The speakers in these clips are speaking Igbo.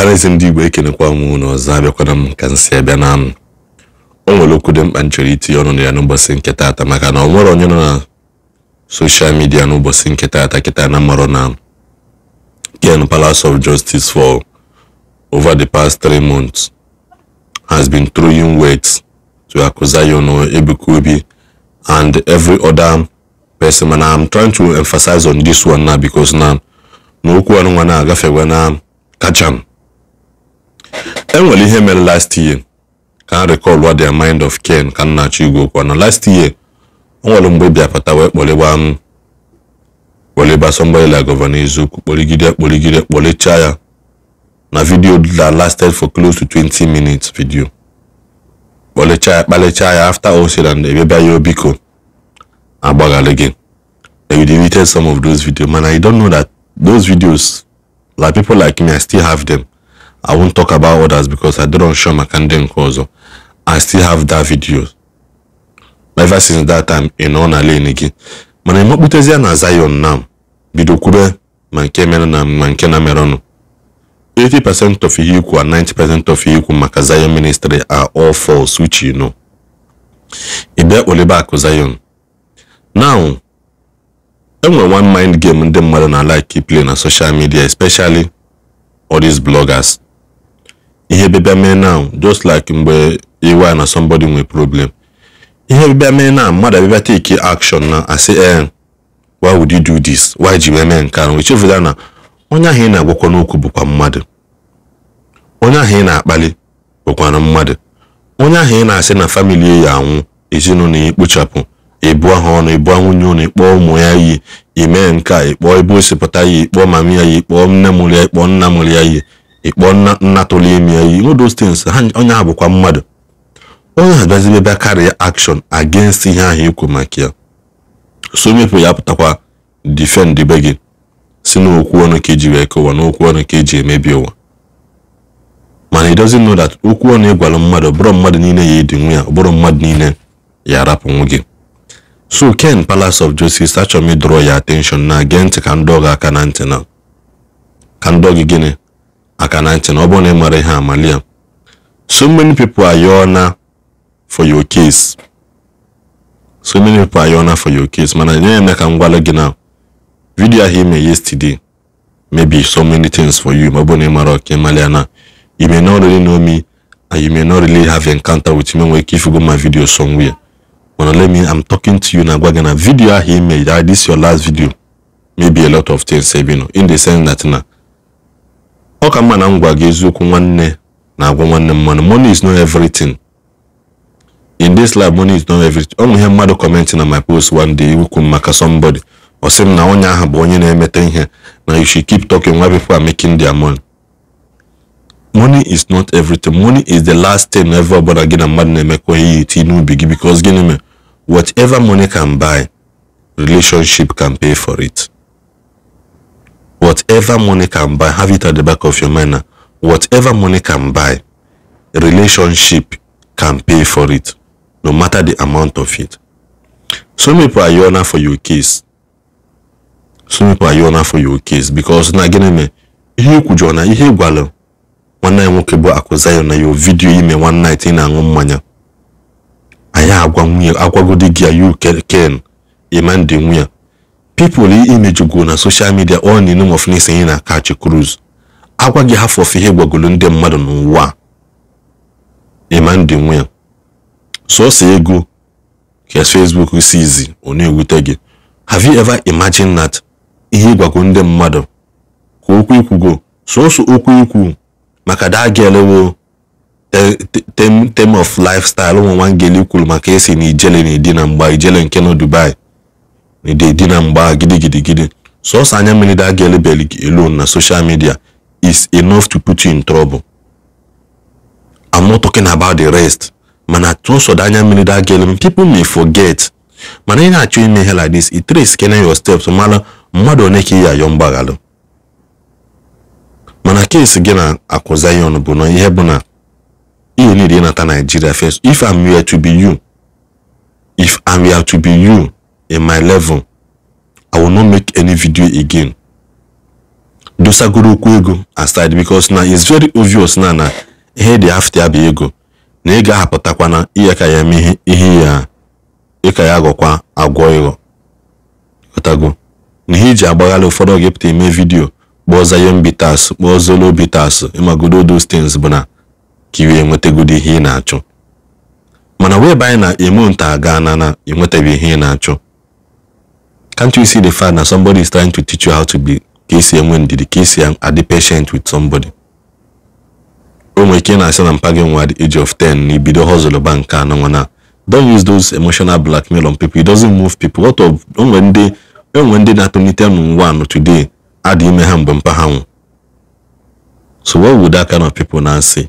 ọhaneze ndị igbo ekenekwa m na ọzọ abịakwana m ka m abịa na m o nwere okwu dị mkpa m chọrọ itinye ọnụ na ya n'ụbọchị nke taata maka na ọ nwere onye nọ na soshal midia n'ụbọchị nke taata kịta na mmarọ na Ken Palace of Justice for over the past three months has been throwing weight to Akuzayono, Ebuka Obi and every other person and I'm trying to emphasize on this one now because n'okwu ọnụ nwa na agafe na kacham enwere ihe mere last year ka a recall what their mind of Ken ka nnachi igwe okwu na last year o nwere mgbe bịapụta wee kpọlịgba m kpọlịgba somebody like Gọvanọ Eziokwu kpọligide akpọligide kpọlichaa ya na video that lasted for close to 20 minutes video kpọlichaa ya kpalichaa ya after all said and ebe bịa ya obiko oh, agbaghalị gị they deleted some of those videos man I don't know that those videos like people like me I still have them i won't talk about others because i don't show maka ndị nke i still have that video ever since that time in nọ na lane gị mana emekputezie na zion na bido kwube ma nke mere na ma nke na merenụ 80% of ihe ikwu and 90% of ihe ikwu maka zion ministry are all false which you know ị bịa kpolebe akụ zion now enwe one mind game ndị mmadụ na like play na social media especially all these bloggers ihe bịa mee now just like mgbe iwa na somebody nwee problem ihe bịa mee now mmadụ abịa take action na asị ee eh, why would you do this why ji wee mee nke ahụ echefuta na onye ahụ ị na-agwakwa n'okwu bụkwa mmadụ onye ahụ ị na-akpali bụkwara mmadụ onye ahụ ị na-asị na famili ya anwụ ezinụlọ ya ekpochapụ ịbụọ ha ọnụ ịbụọ nwunye ụnụ ịkpọọ ụmụ ya iyi ime nke a ịkpọọ ebe osipụta ya ịkpọọ mama ya ya ịkpọọ nne mụrụ ya ịkpọọ nna mụrụ ya iyi ịkpọ nna tolemi ya iwu those things onye ha bụkwa mmadụ onye ha bịazibe bịa karịa akshọn against ihe ahụ ikwu maka ya so mepụ ya pụtakwa difend be gị si n'okwu ọnụ ka eji wee kọwa n'okwu ọnụ ka eji emebi ụwa mana it doesn't know that okwu ọnụ ịgwara mmadụ ọbụrụ mmadụ niile ya ịdị nwa ya ọbụrụ mmadụ niile ya arapụnwu gị so ken palace of justice achọrọ m ịdọrọ ya atenshọn na gee ntị ka ndị gị aka na ntị na ka ndị gị gịnị aka na ntị na ọ bụrụ na ị mara ihe amalia so many people are na for your case so many people are na for your case mana nye ya ka m gwala gị na vidiyo ahụ ime yesterday maybe so many things for you ma ọ bụrụ na ị mara ọka ịmalịa na you may not really know me and you may not really have encounter with me nwere ike ifugo my video somewhere mana let me I'm talking to you na gwa gị na vidiyo ahụ ime ah, this your last video maybe a lot of things ebino eh, in the sense that na ọ ka mma na m gwa gị eziokwu nwanne na-agwa nwanne mmanụ money is not everything in this life money is not everything ọ nwe ihe mmadụ kọmentị na my post one day ukwu maka somebody ọ sị m na onye ahụ bụ onye na-emeta ihe na you should keep talking why people are making their money money is not everything money is the last thing ever ọbụla gị na mmadụ na-emekọ ihe iti n'ubi gị because gịnị mere whatever money can buy relationship can pay for it whatever money can buy, have it at the back of your mind. Now. Whatever money can buy, relationship can pay for it, no matter the amount of it. Some people are honor for your case. Some people are honor for your case because na gịnị me ihe ikwu jụọ na ihe ịgwalụ nwanne ya nwoke bụ akụzayo na yo vidiyo ime one night ị na-aṅụ mmanya anyị agwa nwunye agwagodi gị ya yu ken ịma ndị nwunye pipụl imejugo na soshal midia ọ na name of na-esonye na kachi cruise agwa gị hafụ ofe ihe gwagolo ndị mmadụ n'ụwa imandị nwe sọsọ ego ka facebook si izi ọ na-ewute gị have you ever imagined that ihe gwago ndị mmadụ ka okwu ikwugo sọsọ okwu ikwu maka dagelewo tem of lifestyle ụmụ nwa ngeli kwuru maka esi na ijele na edi na mgba ijele nke nọ dubai na ịdị na mgba gidigidigidi sọsọ anya mmiri da ga elebeli gị alone na social midia is enough to put you in trouble i'm not talking about the rest mana tụsọ da anya mmiri da ga ele people may forget mana ị na-achọ ime ihe like this it trace kene your steps mara mmadụ one ka ị ya ayọ mgbaghalụ mana keesi gị na akụ zion bụ na ihe bụ na you need ịnata Nigeria first if i'm here to be you if i'm here to be you in my level i will not make any video again dosagoro okwu ego aside because na it's very obvious na na ihe dị afta ya bụ ego na ị ga-ahapụtakwa na ihe ka ya mee ihe ya ịka ya agwọkwa agwọ ịghọ ọtago na ihe iji agbaghara ụfọdụ oge pụta eme vidio kpọọ zayon bitas kpọọ zolo bitas ịmagodo those things bụ na ka iwe ihe ị na-achọ mana wee banye na emo nta aga na na enwetaghị ihe ị na-achọ Can't you see the fact that somebody is trying to teach you how to be KCM when the KCM are the patient with somebody? Don't wake I and I'm at the age of 10, He be the hustle bank and Don't use those emotional blackmail on people. It doesn't move people. What of when they when they not only tell one today, add him a So what would that kind of people now say?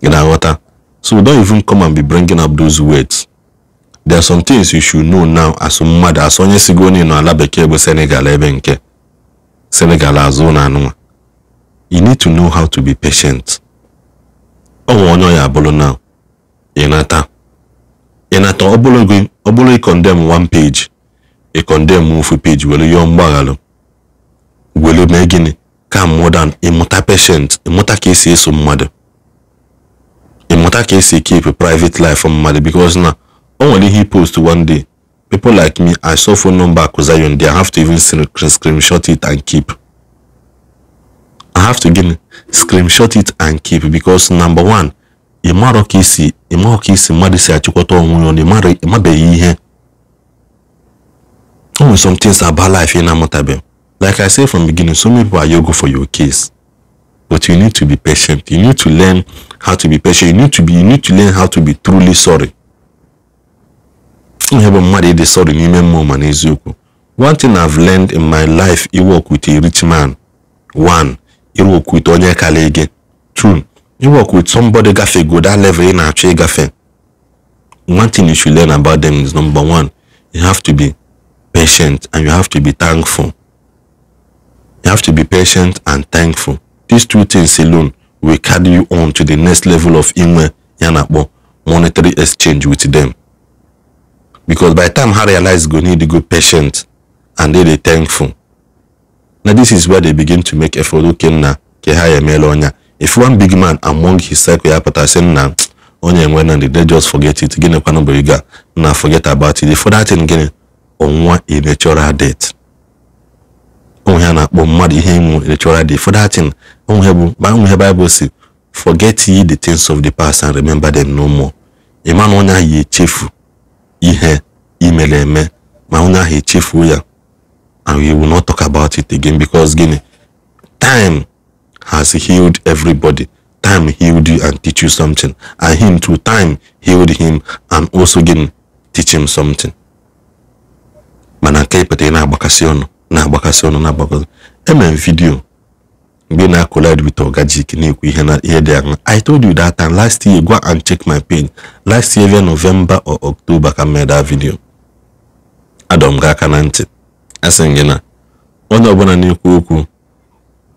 In our water. So don't even come and be bringing up those words. there are some things you should know now asụ mmadụ asụ onye onye nọ ala bekee bụ Senegal ebe nke Senegal azu na anụnwa you need to know how to be patient ọnwa onye ya abụrụ now ịnata ịnata ọbụrụ gị ọbụrụ ị condemn one page ị condemn ofu page were yọọ mgbaghara were mee gịnị ka modern ịmụta patient ịmụta ka esi esu mmadụ ịmụta ka esi keep private life mmadụ because na Only he ihe post one day. People like me, I saw phone number cause I Akuzayon. They have to even screenshot it and keep. I have to again screenshot it and keep because number one, ịmarọ ka isi ịmarọ ka isi mmadụ si achịkọta onwe ya na ịmabeghị ihe. O nwere some things about life ị na-amụtabeghị. Like I say from beginning, so many people are yogo for your case. But you need to be patient. You need to learn how to be patient. You need to be you need to learn how to be truly sorry ihe mmadụ ịdị n'ime mmụọ ma n'eziokwu one thing I've learned in my life work with a rich man one work with onye kala gị two work with somebody gafe go that level ị na-achọ ịgafe one thing you should learn about them is number one you have to be patient and you have to be thankful you have to be patient and thankful these two things alone will carry you on to the next level of inwe ya na-akpọ monetary exchange with them because by the time her realize go need to go patient and they dey thankful Now this is where they begin to make effort okay na ke ha emela if one big man among his circle ya pụtara sị na onye mwana di, they just forget it Gine kwanụ bụ ego na forget about it for that thing gịnị ọnwa a e natural death onwe ha na-akpọ mmadụ ihe ịnwụ e natural death for that thing onwe bụ onwe Bible si forget ye the things of the past and remember them no more ịma na onye ye ya ihe mere eme ma onye ahụ echefuo ya and we will not talk about it again because gịnị time has healed everybody time healed you and teach you something and him too time healed him and also gịnị teach him something mana nke ịpụta ị na-agbakasị ọnụ na-agbakasị ọnụ na-agbakasị emere m vidiyo mgbe na-collide with Oga Jik na-ekwu ihe na ihe dị I told you that time last year gwa and check my page last year via November or October ka mee that video adọm gaa gị aka na ntị asị m gị na onye ọbụla na-ekwu okwu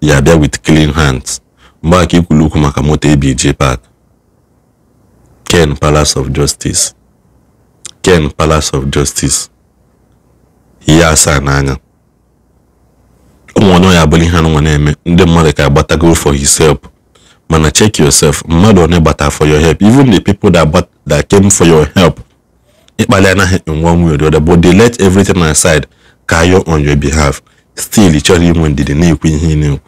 ya bịa with clean hands mgbe aka ikwulu okwu maka moto abj Park Ken Palace of Justice Ken Palace of Justice ihe asaa n'anya ya abụrụ ihe anụnwa na-eme ndị mmadụ ka agbatago for his help mana check yourself mmadụ na gbata for your help even the people that, that came for your help ịkpali anaghị nwa one way or the other but they let everything aside kayo on your behalf still ị chọrọ inwe ndidi na-ekwu ihe ị na-ekwu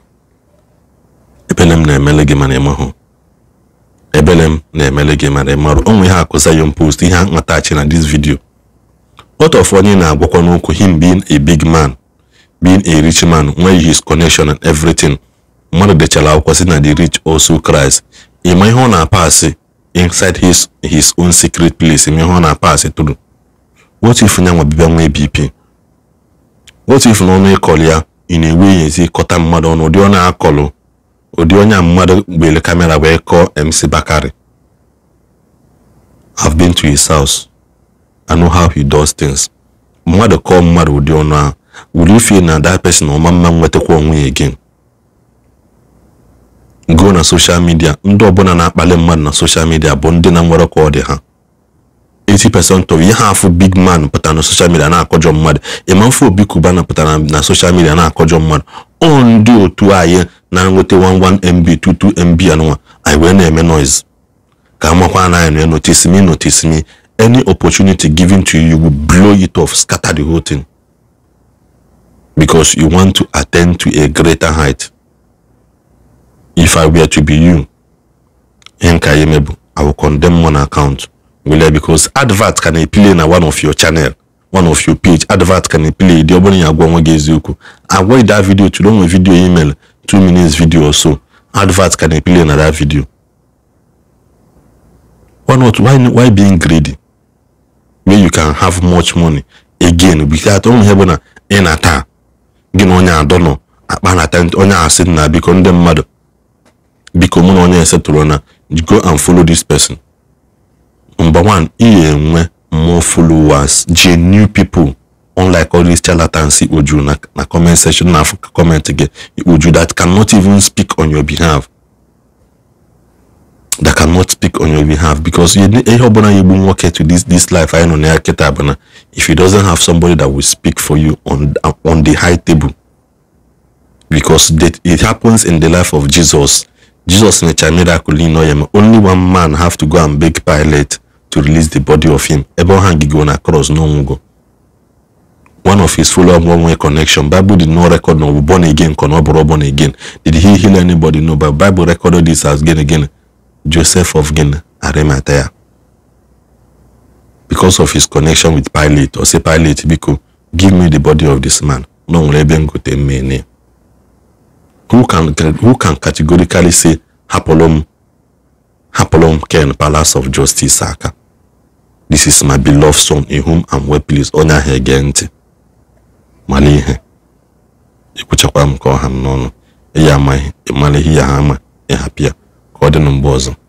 ebele m na-emele gị mana ịmahụ ebele m na-emele gị mara ịmarụ onwe ihe akụzayom post ihe a nwatachi na this video ọtọf onye na-agwakwa n'okwu him being a big man being a rich man nwee his connection and everything mmadụ dechara akwụkwọ si na the rich also Christ ịma ihe ọ na-apasị inside his his own secret place ma ihe ọ na-apasị tụrụ what if nwa bịbịa nwee BP what if na ọnụ ịkọlụ ya ị na-enwe ezi kọta mmadụ ọnụ ụdị ọ akọlụ ụdị onye mmadụ gbere kamera wee kọọ MC Bakari I've been to his house I know how he does things mmadụ kọọ mmadụ ụdị ọnụ ahụ will you feel na that person ọma mma nwetakwa onwe ya again go na social media ndị ọbụla na-akpali mmadụ na social midia bụ ndị na nwere kwa ha 80% of ihe afụ big man pụtara na social media na-akọjọ mmadụ ịmamfe obi kubana pụtara na social midia na-akọjọ mmadụ ọ ndị otu anyị na 1 11 mb 22 mb 1 anyị wee na-eme noise ka amakwa na anyị notice me notice me any opportunity given to you will blow it off scatter the whole thing because you want to attain to a greater height. If I were to be you, I will condemn one account. Will because advert can appeal in one of your channel, one of your page. Advert can appeal. The obony agwongo gezuku. Avoid that video to long video email, two minutes video or so. Advert can appeal in that video. Why not? Why why being greedy? Where you can have much money again without only having an ata gị na onye adọ nọ akpa na tent onye asị na biko ndị mmadụ biko mụ na onye esetụrụ na go and follow this person number one iyi enwe more followers genuine people unlike all these charlatans ikpoju na, na comment section na comment gị ikpoju that cannot even speak on your behalf that cannot speak on your behalf because ihe ọbụla ya egbu nwoke to this this life anyị nọ na ya kịta bụ na if he doesn't have somebody that will speak for you on on the high table because that it happens in the life of jesus jesus only one man have to go and beg pilate to release the body of him cross no one of his follow up one way connection bible did not record no born again born again did he heal anybody no but bible recorded this as again again joseph of guinea arimathea because of his connection with Pilate or say Pilate biko give me the body of this man na nwere ebe m gote mmene who can who can categorically say hapụrụ m hapụrụ m Ken Palace of Justice aka this is my beloved son in whom I'm well pleased onye ahụ ege ntị mara ihe ekwuchakwa m ka ọha m n'ọnụ ya amaghị ịmara ihe ya ha ama ka ọ dị mgbe ọzọ